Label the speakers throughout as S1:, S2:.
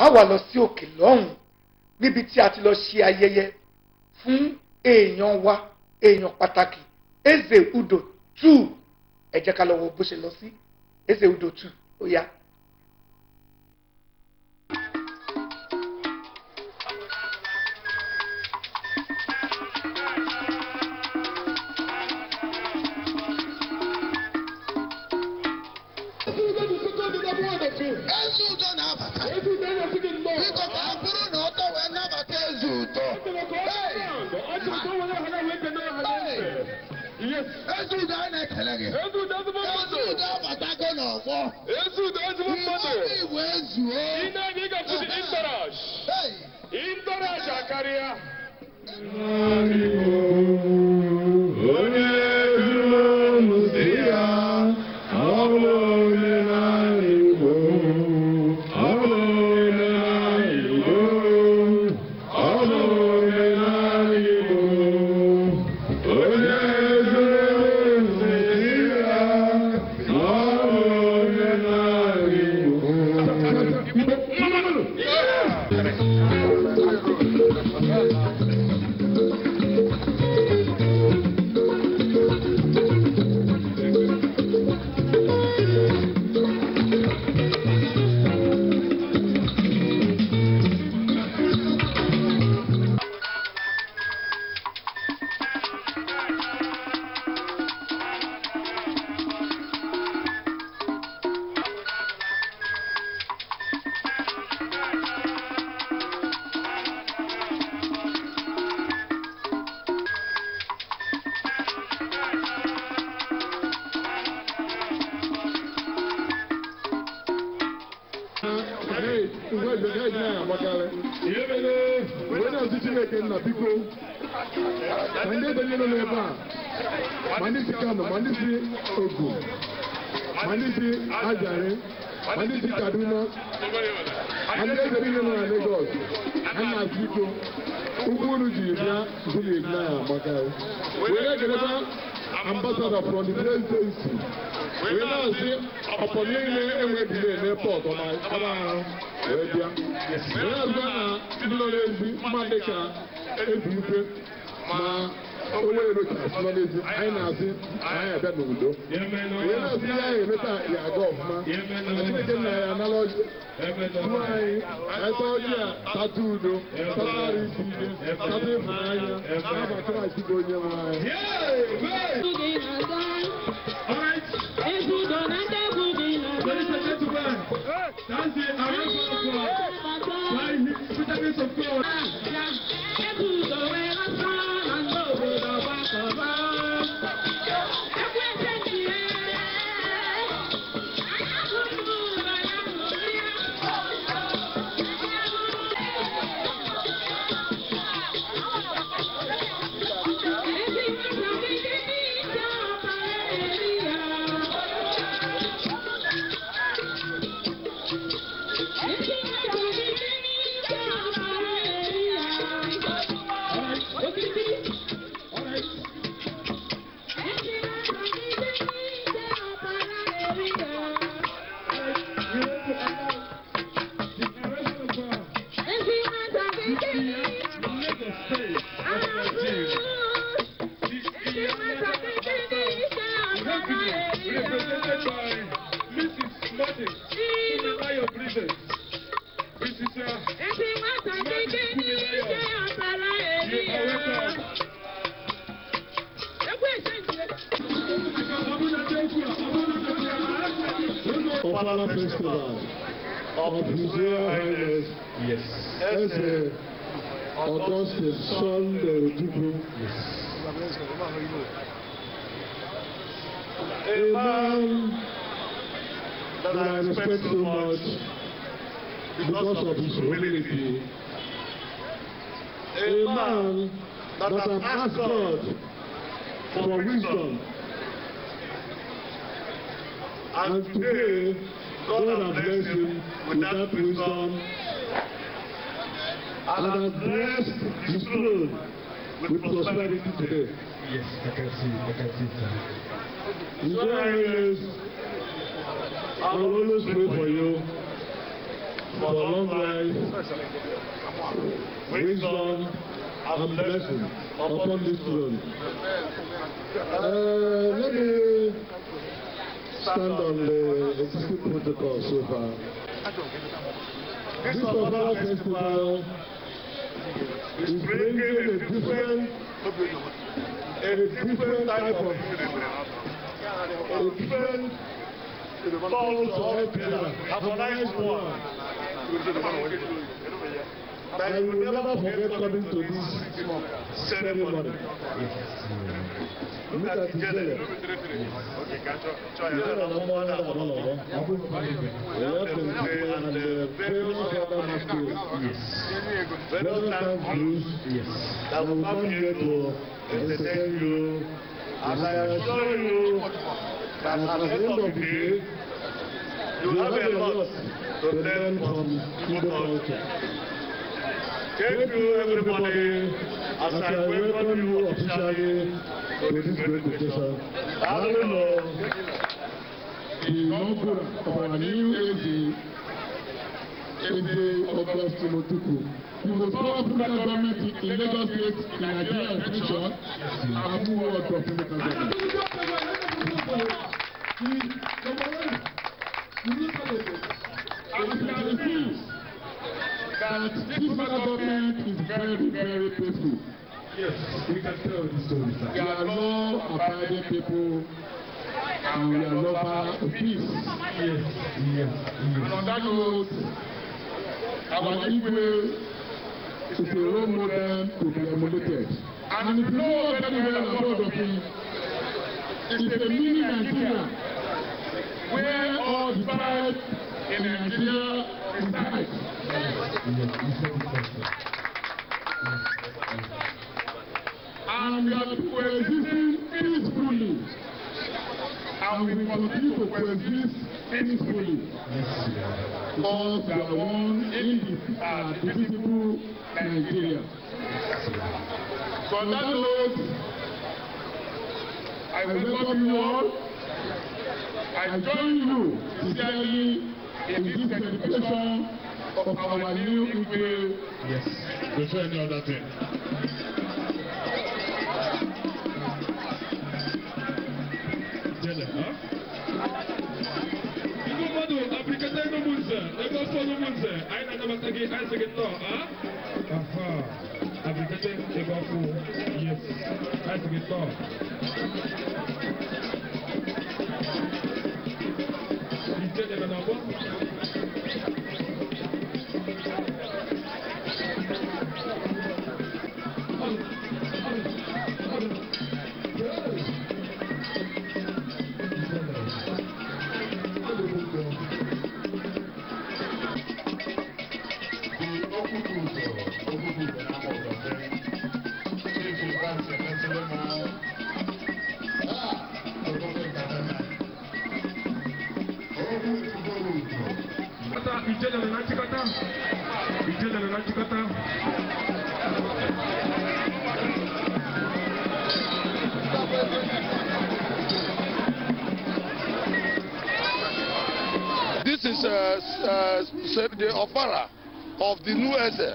S1: a wà lọ sí òkè lọ́hùn níbi tí a ti lọ ṣe ayẹyẹ fún èèyàn wa èèyàn pàtàkì Eze Udo two ẹ jẹ́ ká lọ wo bó ṣe lọ sí Eze Udo two ó yá ụtọ na-abata biko ka ọ bụrụ na ọtọ wee nabata eze ụtọ ezi ụdọ a na-ekele gị ezi ụdọ abatago n'ọgbọ mmadụ igbo ezuo ịntaraja karịa Thank mm. you. nna biko ma ndị ebanyere nọ ebe a ma ndị si Kano ma ndị si Ogu ma ndị si Ajari ma ndị si Kaduna ma ndị eze niile nọ na Lagos ha na-asị iko ụkwụ unu ji bịa zuru ebi na ya amaka were geleba ambasada from the presidency wee na-asị ọpọ niile enweghị n'epọt wee bịa wee na na ndị nọ n'ezi dị ka ebi ikwe ma wọlé yẹn ló ti n'ezi anyị na-asị anyị n'obodo onye na-asị ya anyị emeta ya aga ọfụma chineke ya anala ọjị nwa anyị ata a tata udo tatara isi tata ịfụnanya naba kraịst bụ onye nwe anyị That's the arrangement for by his bitterness of God.
S2: Hallelujah. plusieurs reines. Yes. Est-ce en tant que seul du groupe That I respect so much because of his humility. A man that has asked God for wisdom. And today, God, God has blessed him with that wisdom and has blessed his throne with prosperity today. Yes, I can see, I can see that. In God is, I will always pray for you for a long life, wisdom, and blessing upon this throne. Uh, let me stand on the eh, existing protocol so far. This Papala festival is bringing a different, a different type of, a different soul to help you harmonize one. that you will never forget coming to this ceremony. Look at his belly. Yàrá ọmọ ọ̀nà ọ̀nà ọ̀nà. Ẹ̀yọ́ tó ń pè é the pale father masquerade. Very thank you. I will come here to entertain you. And I assure you that at the end of the day, you have a lot to learn from Igbo culture. Thank you, everybody. As I welcome you officially to this great occasion, Hallelujah. The inaugural of our new AG, AJ
S1: Oblast Timotuku. You will call African government in Lagos State, in Nigeria, and future, I move on to African government. Yes. We can tell
S2: the story. We are
S1: not abiding people and we are lover of peace. Yes. Yes. On that note, our Igwe is a role model to And if you know very well about of him, it's a mini Nigeria where all the in And we are coexisting peacefully. And we continue to coexist peacefully.
S2: Because
S1: we are one indivisible uh, Nigeria. So on that note, I welcome you all. I join you sincerely in this celebration of our new Igwe. Yes, before any other
S2: thing.
S1: dele, ah? Iku madu, Afrikata ino munze, Lagos fonu munze, aina na matagi aise gito, ah? Aha, Afrikata ego fu, yes, aise gitno. Ite de menabo? This is uh, uh, the opera of the new Eze,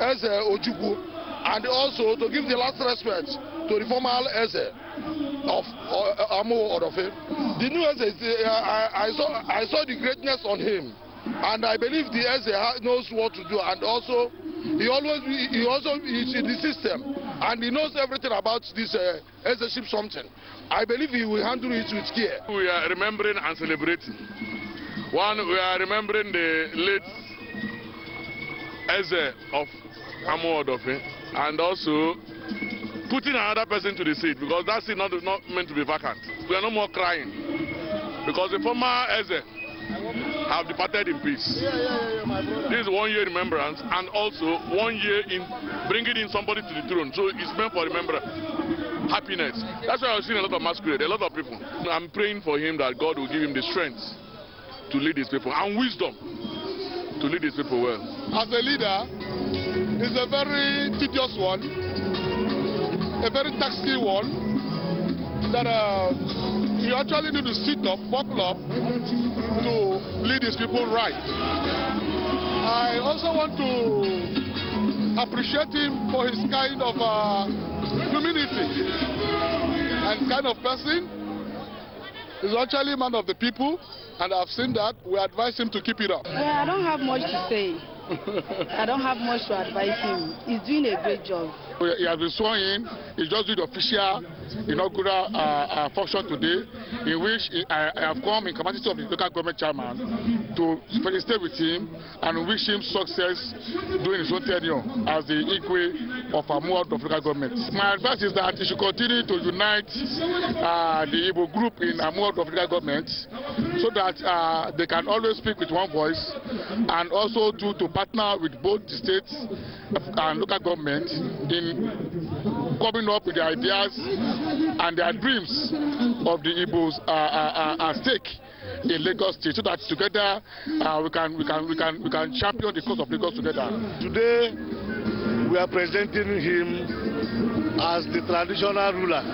S1: Eze Ojukwu, and also to give the last respect to the former Eze of uh, Amo Orofe. The new Eze, uh, I, I, saw, I saw the greatness on him. And I believe the SA knows what to do. And also, he always he also is in the system, and he knows everything about this uh, ship something. I believe he will handle it with care. We are remembering and celebrating. One, we are remembering the late Eze of Amodofe, and also putting another person to the seat because that seat not not meant to be vacant. We are no more crying because the former Eze have departed in peace. Yeah, yeah, yeah, this is one year remembrance and also one year in bringing in somebody to the throne. So it's meant for remembrance. Happiness. That's why I've seen a lot of masquerade, a lot of people. I'm praying for him that God will give him the strength to lead his people and wisdom to lead his people well. As a leader, he's a very tedious one, a very taxing one that uh, you actually need to sit up, buckle up to lead these people right. I also want to appreciate him for his kind of uh, humility and kind of person. He's actually a man of the people, and I've seen that. We advise him to keep it up. Well, I don't have much to say. I don't have much to advise him. He's doing a great job. He has been sworn in. He just did the official inaugural uh, uh, function today, in which I, I have come in capacity of the local government chairman to felicitate with him and wish him success during his own tenure as the Igwe of Amuad of local government. My advice is that he should continue to unite uh, the Igbo group in Amuad of local government so that uh, they can always speak with one voice and also to, to partner with both the states and local government in coming up with the ideas and their dreams of the Igbos uh, uh, uh, at stake in Lagos State so that together uh, we can we can we can we can champion the cause of
S2: Lagos together. Today we are presenting him as the traditional ruler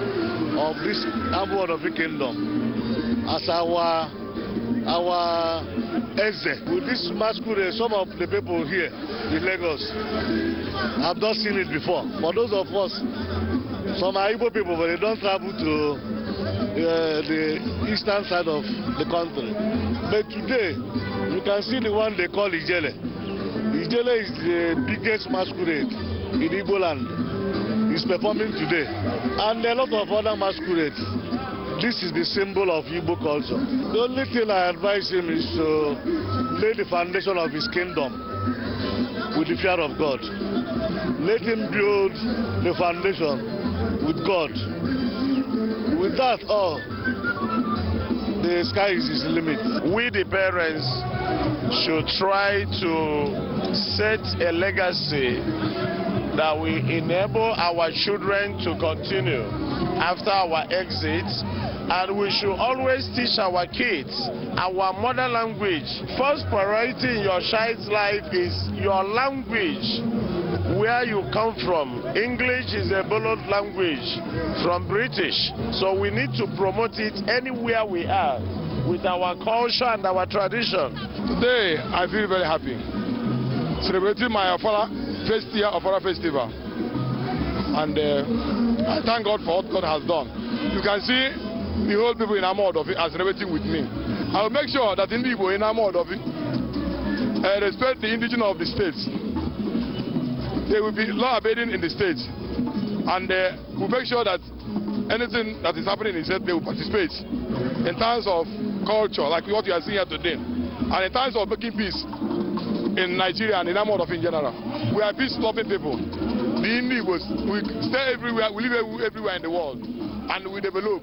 S2: of this of the kingdom as our our Eze. this masquerade, some of the people here in Lagos have not seen it before. For those of us, some are Igbo people, but they don't travel to uh, the eastern side of the country. But today, you can see the one they call Ijele. Ijele is the biggest masquerade in Igbo land. It's performing today. And a lot of other masquerades. This is the symbol of Igbo culture. The only thing I advise him is to lay the foundation of his kingdom with the fear of God. Let him build the foundation with God. With that all, the sky is his limit. We, the parents, should try to set a legacy that will enable our children to continue after our exit and we should always teach our kids our mother language. First priority in your child's life is your language, where you come from. English is a borrowed language from British, so we need to promote it anywhere we are with our culture and our tradition. Today, I feel very happy,
S1: celebrating my Afara first year Afara festival. And uh, I thank God for what God has done. You can see the whole people in Amaodofi are celebrating with me. I will make sure that in Igbo in Amaodofi uh, respect the indigenous of the states. They will be law abiding in the states. And uh, we'll make sure that anything that is happening in state, they will participate in terms of culture, like what you are seeing here today, and in terms of making peace in Nigeria and in of in general. We are peace-loving people. The Indians, we stay everywhere, we live everywhere in the world, and we develop.